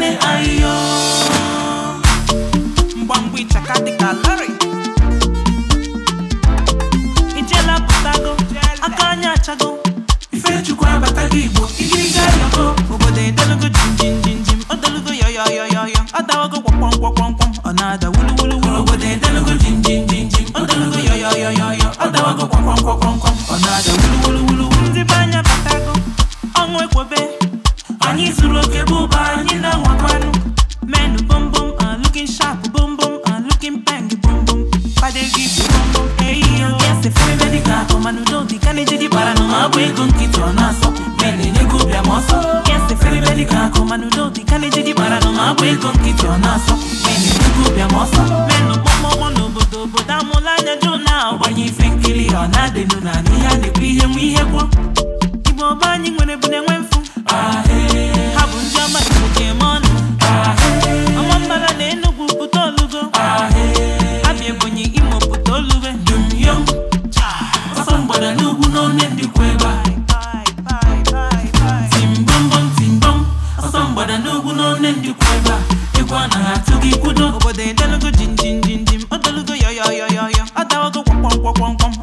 nwanne ayo mgbamgba ịchaka dịka lari ijela pụtago aka anya achago ifechukwu abata gị igbo igiriga yọgo obodo edolugo jinjinjinjim odolugo yọyọyọyọyọ adawago gwakpọmkwọmkwọmkwọm ọ na-ada wuluwuluwulu obodo jinjinjinjim adawago ọ na-ada wuluwuluwulu ndị be anya batago anyị zuru ego nkịtị ọ na-asọ mere ego bịa ma ọsọ eferebeli ka akụ mana udobi ka na-eji gị gbara nọ na-agba ego nkịtị ọ na-asọ mere ego bịa ma ọsọ menụ kpọmọmọ n'obodo obodo amụla anya jụ na-agbanye ife nkiri ọ na-adịnụ na ihe a na-ekwu ihe nwe ihe kwuo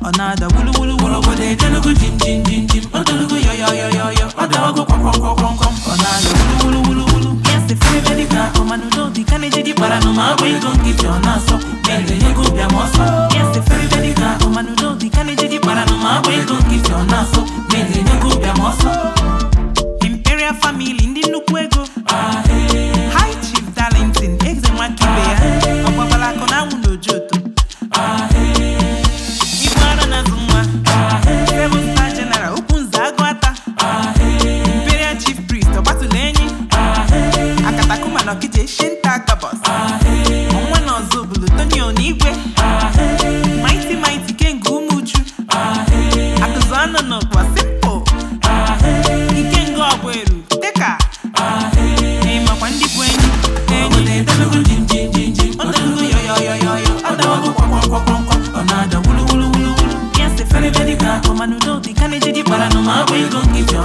ọ̀nàdà wúlúwúlú wúlúwú. ọ̀gọ̀dẹ̀ ìjẹ́nugu jìnjìnjìnjìn ọ̀dọ́nugu yọ̀yọ̀yọ̀yọ̀ ọ̀dọ́nugu kọ̀kọ̀kọ̀kọ̀kọ̀ ọ̀nàdà wúlúwúlúwúlú. yẹ́sì fẹ́rẹ́ bẹ́ẹ̀ dìgbà ọmọ nù lóòdì kánẹ́jì dì para nù máa wí gòǹgì tí ọ̀nà na bẹ́ẹ̀ lè yẹ kó bí n'ụkwa sipo nke nga ọbụ eru dịka ịmakwa ndị bụ enyi enyi